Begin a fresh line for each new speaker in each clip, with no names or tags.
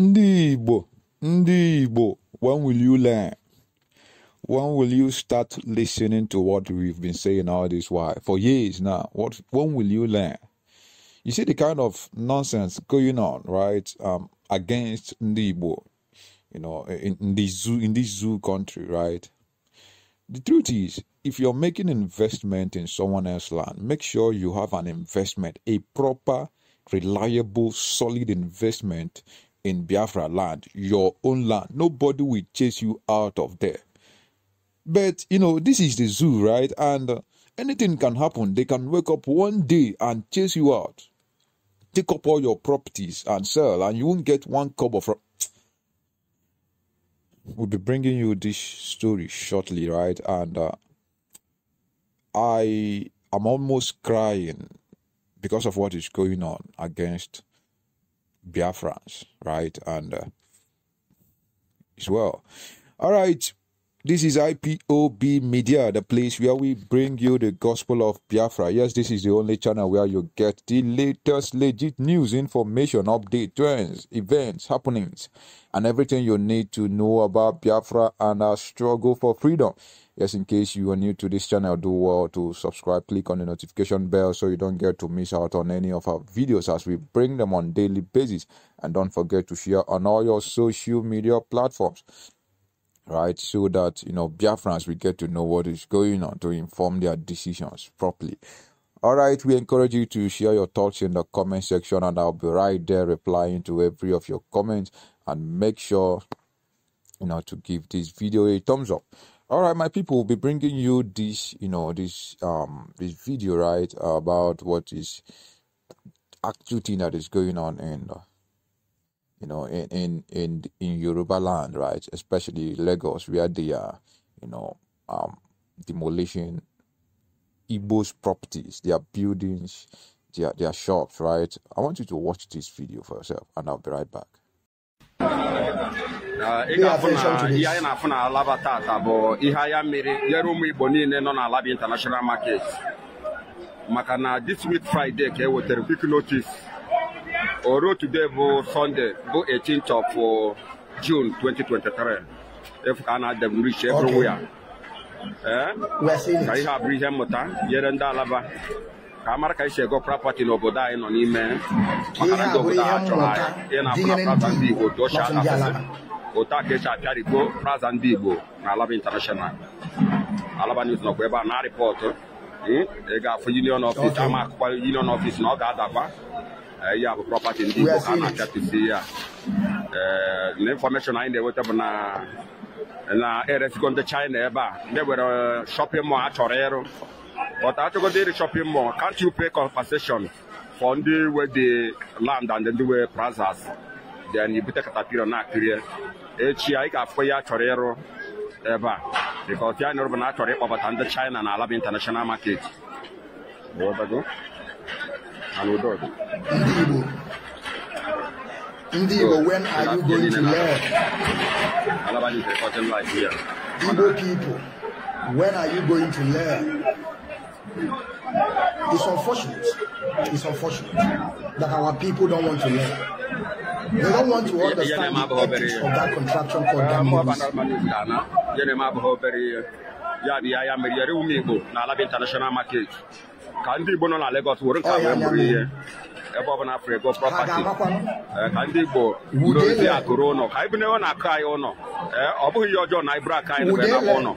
ndị igbo ndị igbo when will you learn when will you start listening to what we've been saying all this while for years now what when will you learn you see the kind of nonsense going on right um, against ndị igbo you know in, in this zoo in this zoo country right the truth is if you're making investment in someone else's land make sure you have an investment a proper reliable solid investment in Biafra land, your own land. Nobody will chase you out of there. But, you know, this is the zoo, right? And uh, anything can happen. They can wake up one day and chase you out, take up all your properties and sell, and you won't get one cup of. We'll be bringing you this story shortly, right? And uh, I am almost crying because of what is going on against Biafrans, right? And uh, as well. All right. This is IPOB Media, the place where we bring you the gospel of Biafra. Yes, this is the only channel where you get the latest legit news, information, update, trends, events, happenings, and everything you need to know about Biafra and our struggle for freedom. Yes, in case you are new to this channel, do well to subscribe, click on the notification bell so you don't get to miss out on any of our videos as we bring them on daily basis. And don't forget to share on all your social media platforms right? So that you know Biafrans will get to know what is going on to inform their decisions properly. All right, we encourage you to share your thoughts in the comment section, and I'll be right there replying to every of your comments. And make sure you know to give this video a thumbs up. All right, my people, will be bringing you this, you know, this um this video right about what is actual thing that is going on in. Uh, you know, in in in, in Yoruba land, right? Especially Lagos, where they are, you know, um, demolishing Igbo's properties, their buildings, their their shops, right? I want you to watch this video for yourself, and I'll be right back.
Uh, international market this week Friday notice Ọrụ today bụ Sunday bụ 18th of uh, June 2023 efu ka a na-adabụ rich everywhere ka ihe abụrụ ihe mmụta nyere ndị alaba ka a mara ka esi ego prapati n'obodo anyị nọ n'ime maka na ndị obodo a chọrọ anyị ịna-abụra praza ndị Igbo otu ochie asụsụ otu aka esi apịarịbo praza ndị Igbo na Alaba International Alaba News nọkwa ebe a na-arịpọtụ ị hmm? e ga union office ama akụkọ union office na ọ ga-adakwa Eh, eh, ya bụ prọpati ndị Igbo ha na-achapụsi ya na infọmeshọn anyị na-enweta bụ na na eresikọ ndị China ebe a ndị were shọpịn mọl achọrọ ịrụ but achọgodo ịrụ shọpịn mọl can't you pay compensation for ndị we dị land and ndị we plazas then ibute katapira na-akịrị echi eh, anyị ga-afụ ya achọrọ ịrụ ebe because ya nụrụ bụ na achọrọ ịkpọbata ndị China na alaba international market and Udod. Ndị Igbo, Ndị when are you going to learn?
Igbo people, when are you going to learn? It's unfortunate. It's unfortunate that our people don't want to learn. They don't want to understand the ethics of that contraction called Gambians.
ya bụ ya ya mere yere ụmụ Igbo n'ala bụ international market ka ndị Igbo nọ na Lagos were nka wee bụrụ ihe ebe ọ bụla afrịgo prọpati ka ndị Igbo dozie akụrụ ụlọ ka anyị bụnewe na akụ anyị ụlọ eh, ọ bụghị ihe ọjọọ na iburu aka anyị na ụlọ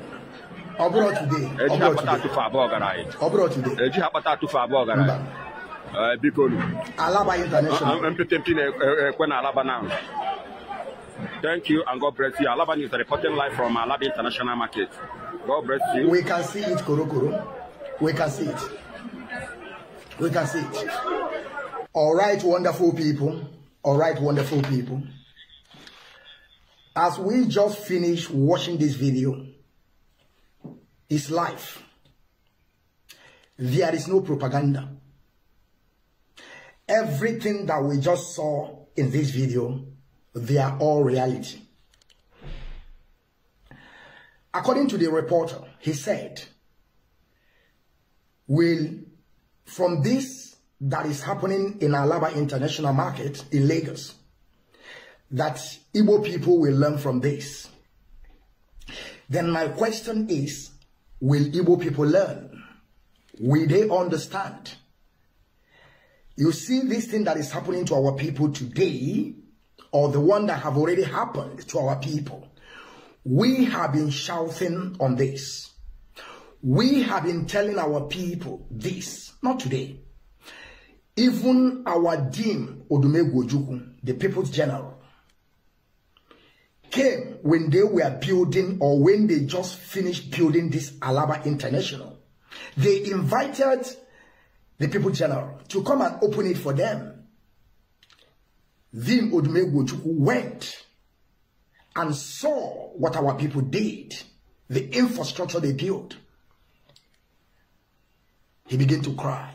eji ha akpata atụfu abụọ gara anyị eji ha akpata atụfu abụọ gara anyị eh, biko
ah, ah,
mpịtịmpị na-ekwe e, na Alaba now Thank you and God bless you. Alaba News are reporting live from Alaba International Market.
God bless you. We can see it, Korokoro. We can see it. We can see it. All right, wonderful people. All right, wonderful people. As we just finished watching this video, it's life. There is no propaganda. Everything that we just saw in this video, they are all reality. According to the reporter, he said, will from this that is happening in Alaba International Market in Lagos that Igbo people will learn from this. Then my question is, will Igbo people learn? Will they understand? You see this thing that is happening to our people today, or the one that have already happened to our people, we have been shouting on this. We have been telling our people this, not today. Even our dean, Odumegwu Ojukwu, the People's General, came when they were building or when they just finished building this Alaba International. They invited the People's General to come and open it for them. Then Odumegwu Ojukwu went and saw what our people did, the infrastructure they built. He began to cry.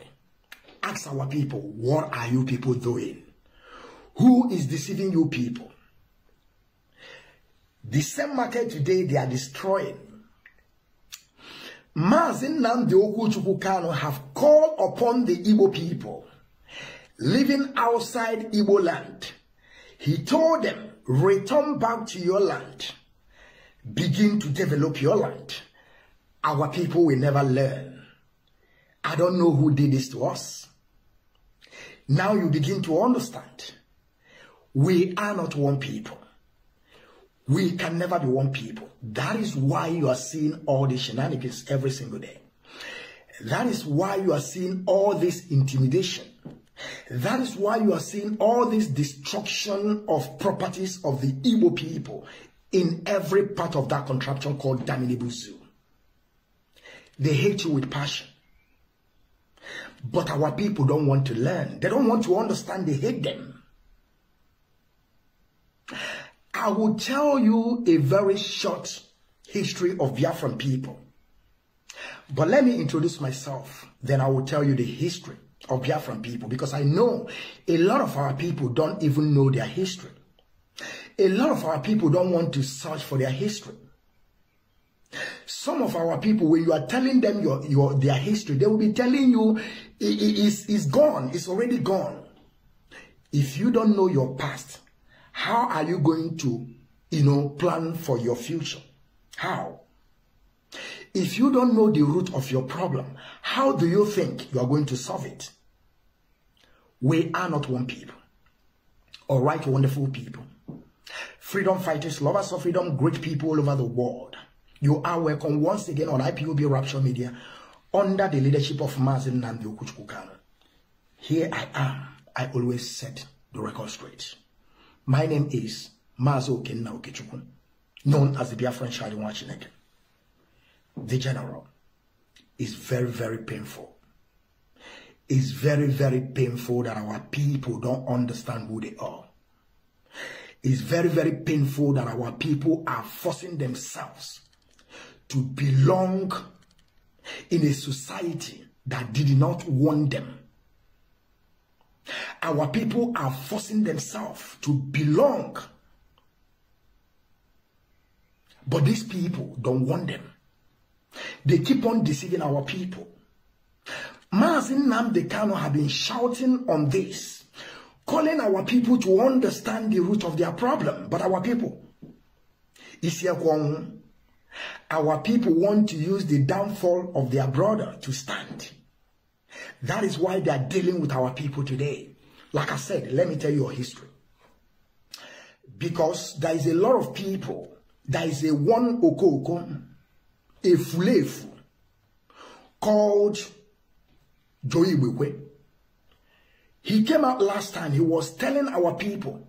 Ask our people, what are you people doing? Who is deceiving you people? The same market today they are destroying. Mazin Namdi Okuchukukano have called upon the Igbo people living outside Igbo land. He told them, return back to your land. Begin to develop your land. Our people will never learn. I don't know who did this to us. Now you begin to understand. We are not one people. We can never be one people. That is why you are seeing all these shenanigans every single day. That is why you are seeing all this intimidation. That is why you are seeing all this destruction of properties of the Igbo people in every part of that contraption called Daminibuzu. They hate you with passion. But our people don't want to learn. They don't want to understand. They hate them. I will tell you a very short history of Biafran people. But let me introduce myself. Then I will tell you the history of Biafran people because I know a lot of our people don't even know their history. A lot of our people don't want to search for their history. Some of our people, when you are telling them your, your their history, they will be telling you it, it, it's, it's gone. It's already gone. If you don't know your past, how are you going to, you know, plan for your future? How? If you don't know the root of your problem, how do you think you are going to solve it? We are not one people. All right, wonderful people. Freedom fighters, lovers of freedom, great people all over the world. You are welcome once again on IPUB Rapture Media under the leadership of Mazin Nambi Okuchukukano. Here I am. I always set the record straight. My name is Mazo Okenna Okechukwu, known as the Biafran Charlie Wachinek. The general is very, very painful. It's very, very painful that our people don't understand who they are. It's very, very painful that our people are forcing themselves to belong in a society that did not want them. Our people are forcing themselves to belong. But these people don't want them. They keep on deceiving our people. Mazin Namdekano have been shouting on this, calling our people to understand the root of their problem. But our people, Isiakwong, our people want to use the downfall of their brother to stand. That is why they are dealing with our people today. Like I said, let me tell you a history. Because there is a lot of people, there is a one okoko, a fulefu, called Joey Wewe. He came out last time, he was telling our people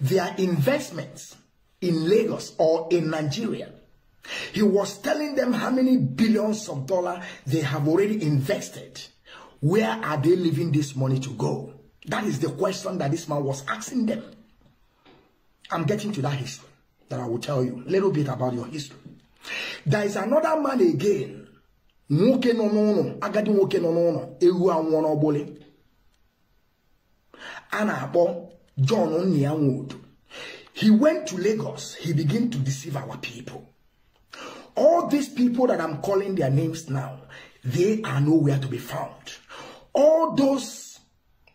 their investments in Lagos or in Nigeria he was telling them how many billions of dollars they have already invested. Where are they leaving this money to go? That is the question that this man was asking them. I'm getting to that history that I will tell you a little bit about your history. There is another man again. Nwoke nọ n'ụlọ, agadi nwoke nọ n'ụlọ, ewu anwụọ John Nnia He went to Lagos. He began to deceive our people. All these people that I'm calling their names now, they are nowhere to be found. All those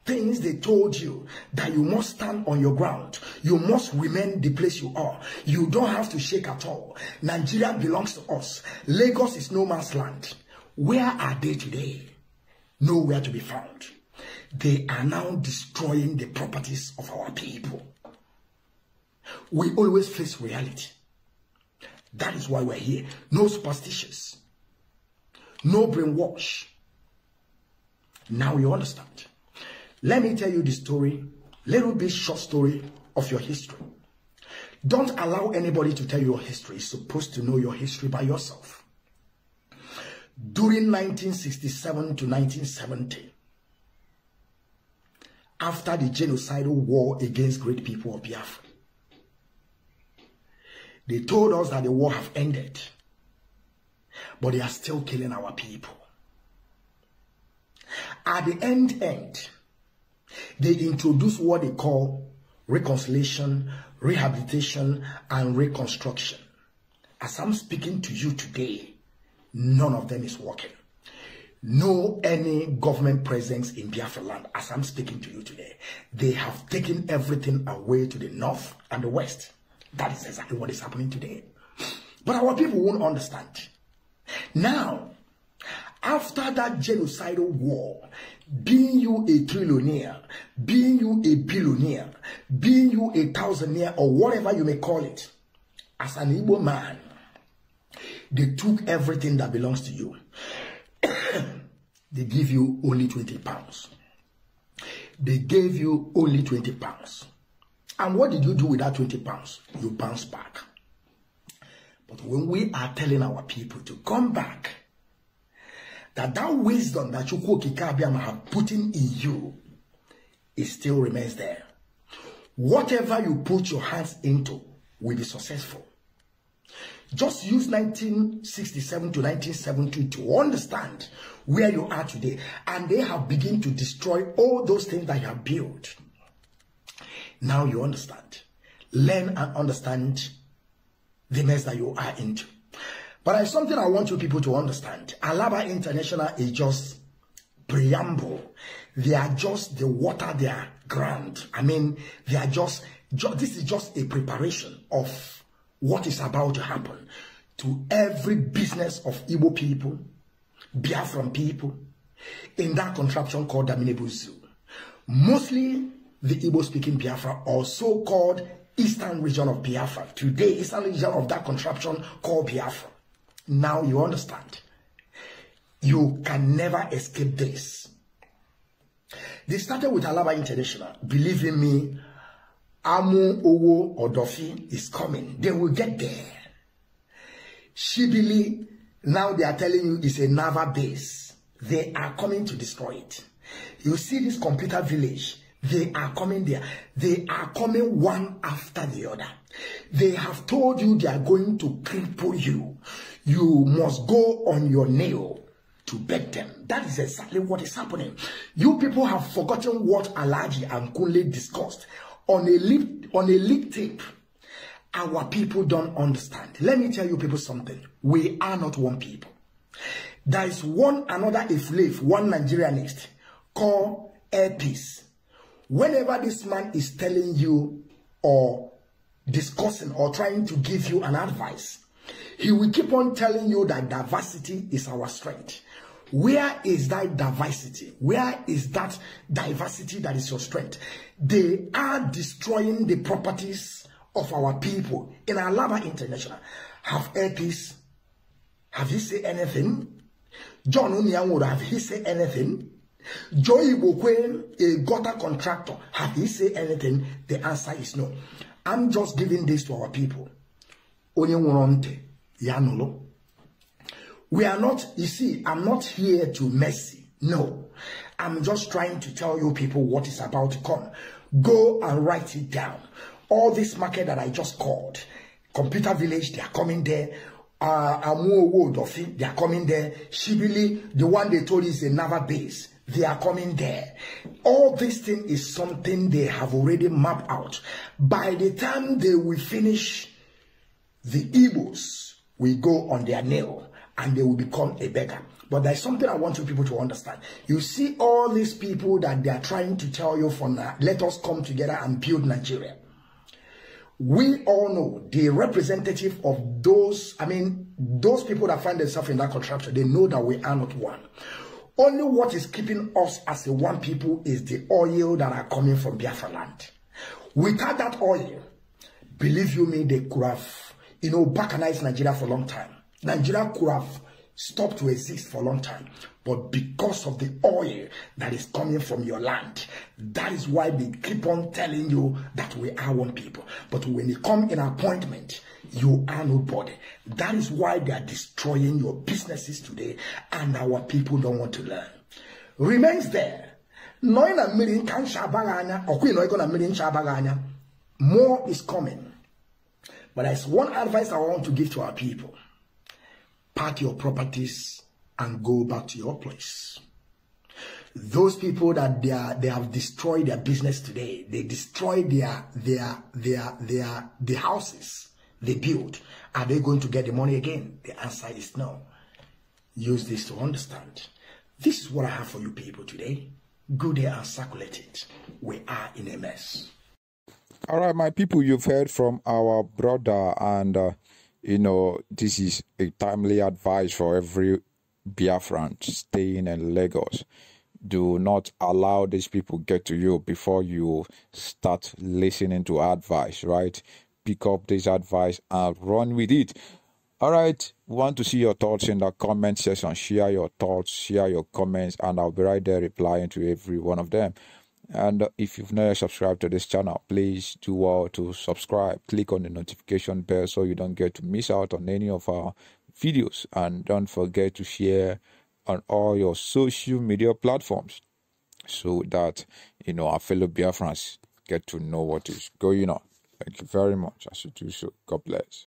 things they told you that you must stand on your ground, you must remain the place you are. You don't have to shake at all. Nigeria belongs to us. Lagos is no man's land. Where are they today? Nowhere to be found. They are now destroying the properties of our people. We always face reality. That is why we're here. No superstitions. No brainwash. Now you understand. Let me tell you the story, little bit short story of your history. Don't allow anybody to tell you your history. You're supposed to know your history by yourself. During 1967 to 1970, after the genocidal war against great people of Biafra, they told us that the war have ended. But they are still killing our people. At the end end, they introduce what they call reconciliation, rehabilitation, and reconstruction. As I'm speaking to you today, none of them is working. No any government presence in Biafra land as I'm speaking to you today. They have taken everything away to the north and the west. That is exactly what is happening today. But our people won't understand. Now, after that genocidal war, being you a trillionaire, being you a billionaire, being you a thousandaire, or whatever you may call it, as an Igbo man, they took everything that belongs to you. they give you only 20 pounds. They gave you only 20 pounds. And what did you do with that 20 pounds? You bounce back. But when we are telling our people to come back, that that wisdom that Chukwu Kikabiam have put in you, it still remains there. Whatever you put your hands into will be successful. Just use 1967 to nineteen seventy to understand where you are today. And they have begun to destroy all those things that you have built. Now you understand. Learn and understand the mess that you are into. But it's something I want you people to understand. Alaba International is just preamble. They are just the water they are ground. I mean, they are just, just this is just a preparation of what is about to happen to every business of Igbo people, Biafran people, in that contraption called Damine Zoo. Mostly the Igbo speaking Biafra or so called eastern region of Biafra. Today, eastern region of that contraption called Biafra. Now you understand. You can never escape this. They started with Alaba International. Believe in me, Amu Owo Odofi is coming. They will get there. Shibili, now they are telling you it's a naval base. They are coming to destroy it. You see this computer village they are coming there. They are coming one after the other. They have told you they are going to cripple you. You must go on your nail to beg them. That is exactly what is happening. You people have forgotten what Alaji and Kunle discussed on a lip on a leak tape. Our people don't understand. Let me tell you people something. We are not one people. There is one another if live one Nigerianist called Air Peace whenever this man is telling you or discussing or trying to give you an advice, he will keep on telling you that diversity is our strength. Where is that diversity? Where is that diversity that is your strength? They are destroying the properties of our people in Alaba International. Have Elkis, have he said anything? John Unyan would have he said anything? Joy Ibokwe, a gutter contractor, have he said anything? The answer is no. I'm just giving this to our people. We are not, you see, I'm not here to mercy. No. I'm just trying to tell you people what is about to come. Go and write it down. All this market that I just called, Computer Village, they are coming there. Uh, Amuowo Dofi, they are coming there. Shibili, the one they told is another base. They are coming there. All this thing is something they have already mapped out. By the time they will finish, the evils will go on their nail and they will become a beggar. But there's something I want you people to understand. You see all these people that they are trying to tell you from, now, let us come together and build Nigeria. We all know the representative of those, I mean, those people that find themselves in that contraption, they know that we are not one. Only what is keeping us as a one people is the oil that are coming from Biafra land. Without that oil, believe you me, they could have, you know, balkanized Nigeria for a long time. Nigeria could have Stop to exist for a long time. But because of the oil that is coming from your land, that is why they keep on telling you that we are one people. But when you come in appointment, you are nobody. That is why they are destroying your businesses today, and our people don't want to learn. Remains there. Knowing a million can shabaganya, or queen a million shabaganya. more is coming. But there's one advice I want to give to our people pack your properties and go back to your place. Those people that they are, they have destroyed their business today. They destroyed their, their, their, their, the houses they built. Are they going to get the money again? The answer is no. Use this to understand. This is what I have for you people today. Go there and circulate it. We are in a mess.
All right, my people, you've heard from our brother and uh, you know, this is a timely advice for every Biafran staying in Lagos. Do not allow these people get to you before you start listening to advice, right? Pick up this advice and run with it. All right, want to see your thoughts in the comment section. Share your thoughts, share your comments, and I'll be right there replying to every one of them and if you've not subscribed to this channel please do well to subscribe click on the notification bell so you don't get to miss out on any of our videos and don't forget to share on all your social media platforms so that you know our fellow biafrans get to know what is going on thank you very much I should do so god bless